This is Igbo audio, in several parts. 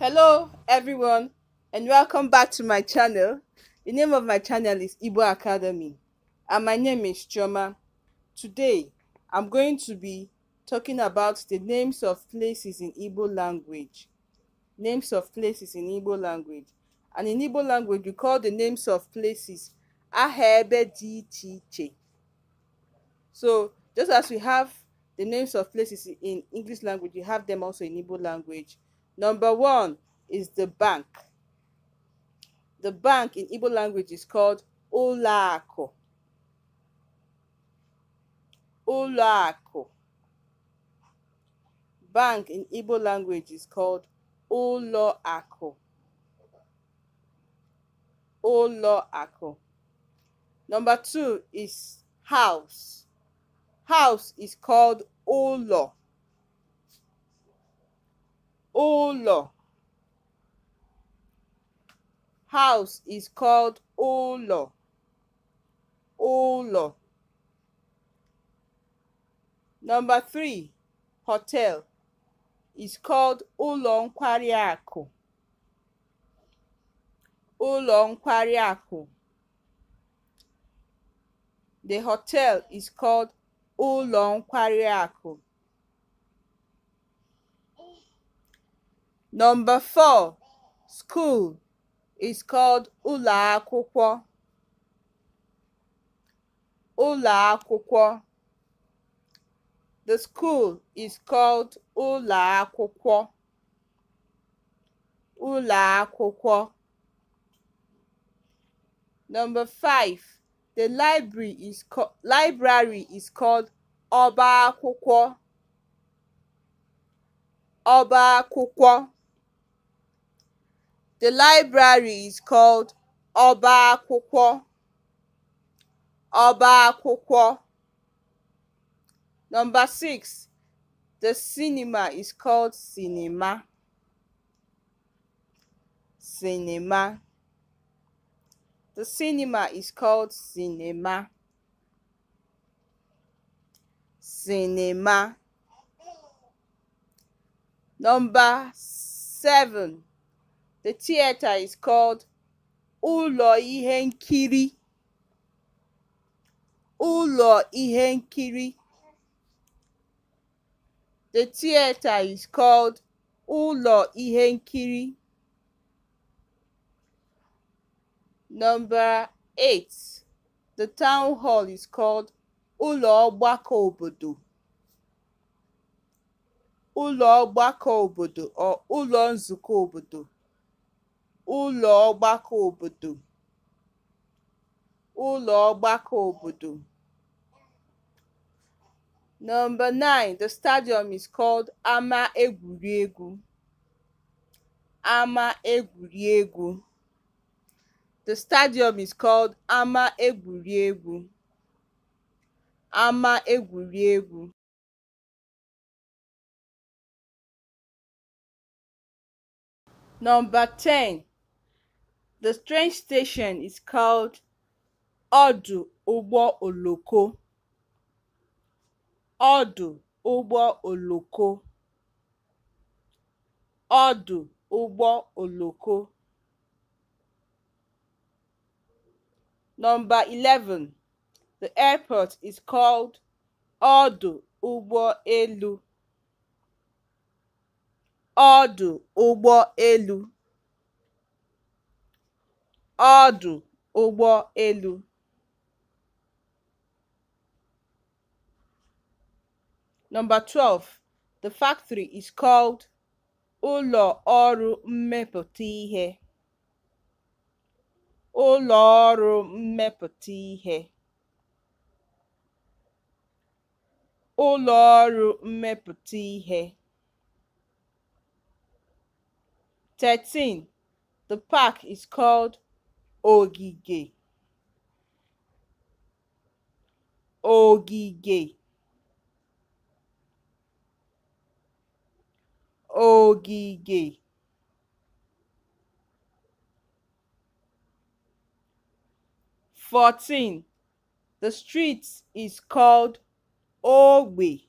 Hello everyone and welcome back to my channel. The name of my channel is Igbo Academy and my name is Choma. Today I'm going to be talking about the names of places in Igbo language. Names of places in Igbo language. And in Igbo language we call the names of places Ahebe Che. So just as we have the names of places in English language, we have them also in Igbo language. Number one is the bank. The bank in Igbo language is called Olaako. Olaako. Bank in Igbo language is called Oloako. Oloako. Number two is house. House is called Olo. ụlọ house is called ụlọ ụlọ number three hotel is called ụlọ nkwari akụ ụlọ nkwari akụ the hotel is called ụlọ nkwari akụ Number four, school is called Ula akwụkwọ. Ula akwụkwọ. The school is called Ula akwụkwọ. Ula akwụkwọ. Number five, the library is library is called ọba akwụkwọ. Ọba akwụkwọ. The library is called Oba Akwụkwọ. Oba Akwụkwọ. Number six, the cinema is called cinema. Cinema. The cinema is called cinema. Cinema. Number seven. The theater is called Ulo Ihenkiri. Ulo Ihenkiri. The theater is called Ulo Ihenkiri. Number 8. The town hall is called Ulo Ogbako Obodo. Ulo Ogbako Obodo or Ulo Nzuko Obodo. ụlọ ọgbakọ obodo ụlọ ọgbakọ obodo Number 9 the stadium is called ama egwuregwu ama egwuregwu The stadium is called ama egwuregwu ama egwuregwu Number 10 The train station is called Ọdụ Ụgbọ Oloko (Ọdụ Ụgbọ Oloko) (Ọdụ Ụgbọ Oloko) Number 11, the airport is called Ọdụ Ụgbọ Elu (Ọdụ Ụgbọ Elu) ọdụ ụgbọ elu Number 12. The factory is called ụlọ ọrụ mmepụta ihe. ụlọ ọrụ mmepụta ihe. ụlọ ọrụ mmepụta ihe. 13. The park is called ogige ogige ogige fourteen the street is called ogbe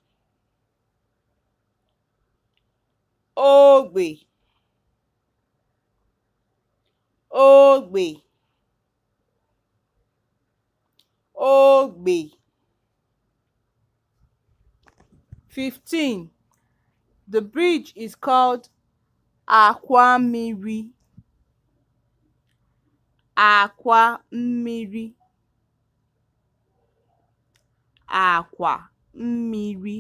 ogbe ogbe ogbè fifteen the bridge is called àkwàmmiri àkwàmmiri àkwà mmiri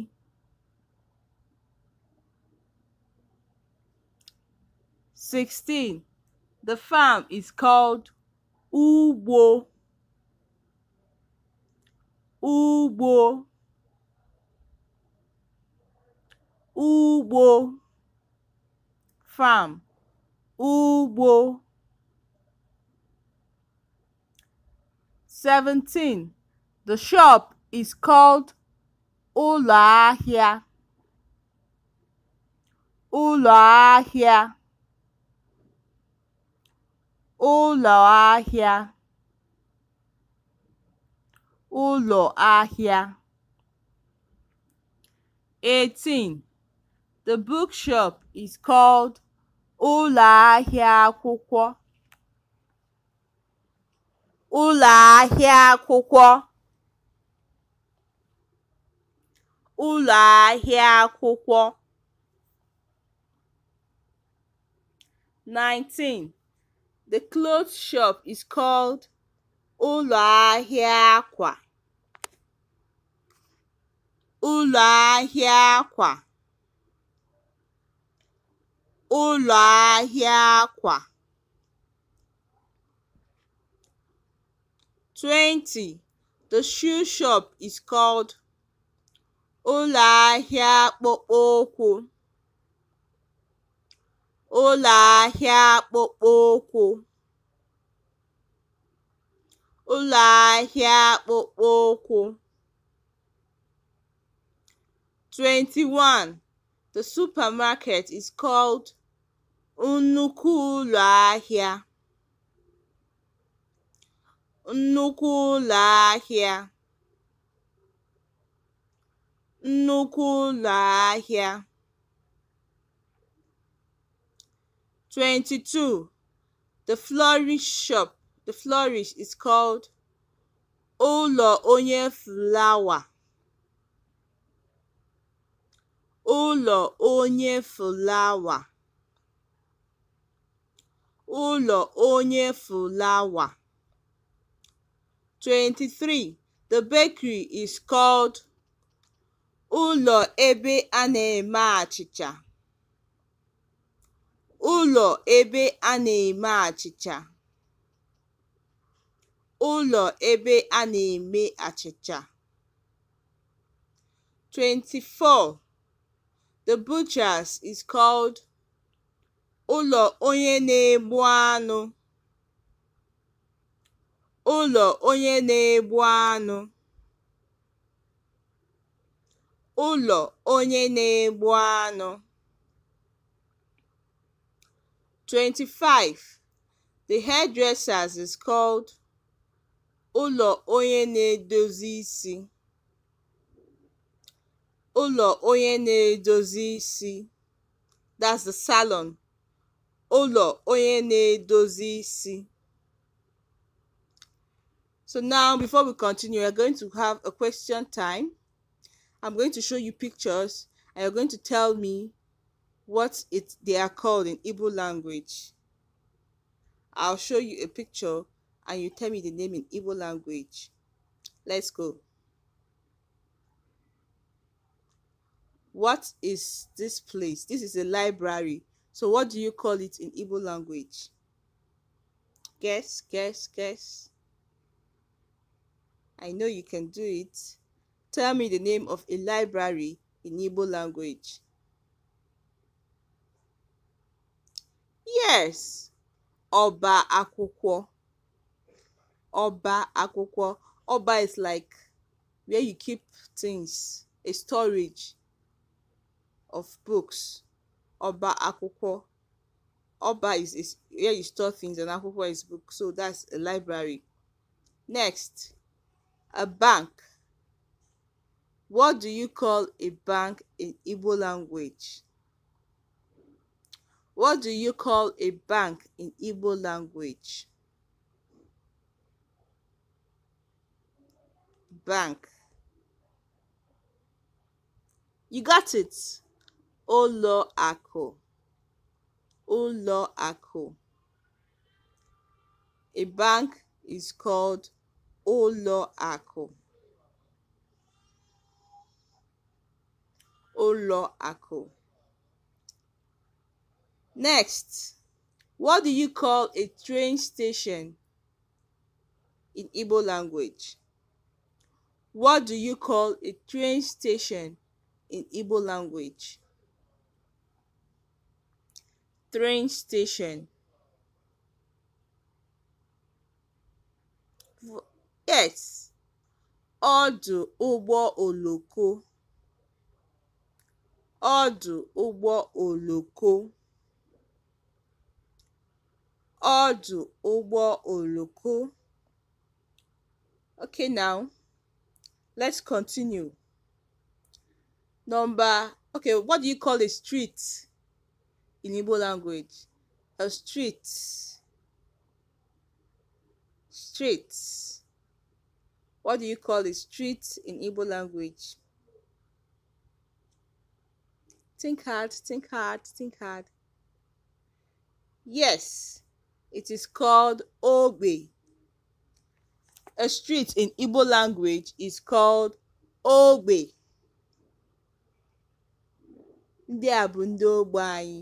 sixteen the farm is called ugbo. ugbo ugbo farm ugbo 17 the shop is called ụlọ ahịa ụlọ ahịa ụlọ ahịa ụlọ ahịa 18. The bookshop is called ụlọ ahịa akwụkwọ. ụlọ ahịa akwụkwọ ụlọ ahịa akwụkwọ 19. The clothes shop is called ụlọ ahịa akwa ụlọ ahịa akwa ụlọ ahịa akwa. 20. The shoe shop is called ụlọ ahịa akpụkpọ ụkwụ ụlọ ahịa akpụkpọ ụkwụ ụlọ ahịa akpụkpọ ụkwụ. 21. The supermarket is called nnukwu ụlọ ahịa. nnukwu ụlọ ahịa. nnukwu ụlọ ahịa. 22. The florist shop The flourish is called ụlọ onye flawa. ụlọ onye flawa. ụlọ onye flawa. 23. The bakery is called ụlọ ebe a na-eme achịcha. ụlọ ebe a na-eme achịcha. ụlọ ebe a na-eme achịcha. 24 "The Butcher's" is called "ụlọ onye na-egbu anụ" (ụlọ onye na-egbu anụ). (ụlọ onye na-egbu anụ). 25 "The hairdressers is called Ụlọ onye na-edozi isi Ụlọ onye na-edozi isi (that's the salon) Ụlọ onye na-edozi isi So now, before we continue, we're going to have a question time. I'm going to show you pictures and you're going to tell me what it they are called in Igbo language. I'll show you a picture and you tell me the name in Igbo language. Let's go. What is this place? This is a library. So what do you call it in Igbo language? Guess, guess, guess. I know you can do it. Tell me the name of a library in Igbo language. Yes, Oba Akwụkwọ. Oba Akwụkwọ. Oba is like where you keep things, a storage of books. Oba Akwụkwọ. Oba is, is where you store things and Akwụkwọ is book. So that's a library. Next, a bank. What do you call a bank in Igbo language? What do you call a bank in Igbo language? bank. You got it. Ụlọ akụ. Ụlọ akụ. A bank is called ụlọ akụ. Ụlọ akụ. Next, what do you call a train station in Igbo language? What do you call a train station in Igbo language? Train station. Yes. Ọdụ ụgbọ oloko. Ọdụ ụgbọ oloko. Ọdụ ụgbọ oloko. Okay now let's continue number okay what do you call a street in igbo language a street street what do you call a street in igbo language think hard think hard think hard yes it is called ogbe A street in Igbo language is called ogbe. Ndị a bụ ndị ogbe anyị.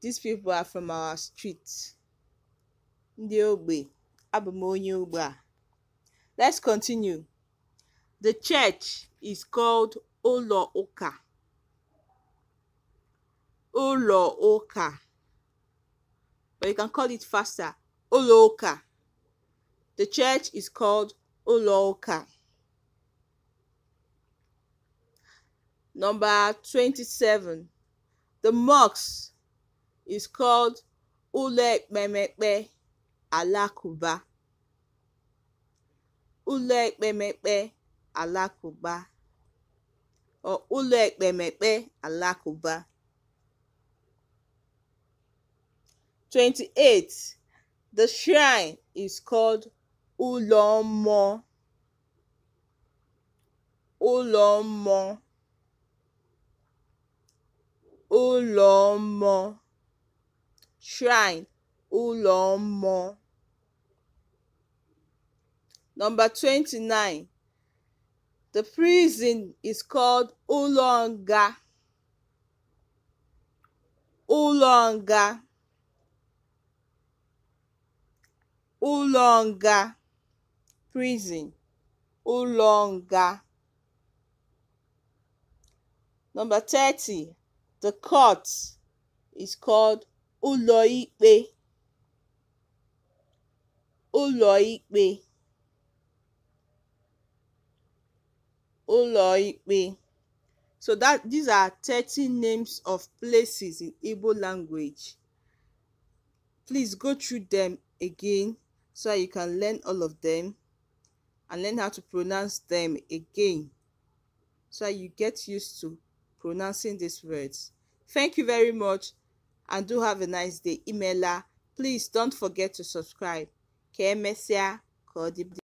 These people are from our street. Ndị ogbe. Abụ m onye ogbe a. Let's continue. The church is called ụlọ ụka. Ụlọ ụka. But you can call it faster. Ụlọ ụka. The church is called Uloka. Number 27. The mosque is called Ulekmemekpe Alakuba. Ulekmemekpe Alakuba. Or Ulekmemekpe Alakuba. 28. The shrine is called ụlọ mmụọ ụlọ mmụọ ụlọ mmụọ (shrine) ụlọ mmụọ.29. The prison is called ụlọ nga (ụlọ nga). ụlọ nga prison ụlọ nga. Number 30. The court is called ụlọikpe. ụlọikpe. ụlọikpe. So that these are 30 names of places in Igbo language. Please go through them again so you can learn all of them and learn how to pronounce them again so that you get used to pronouncing these words. Thank you very much and do have a nice day. Emailer, please don't forget to subscribe. Ka emesịa,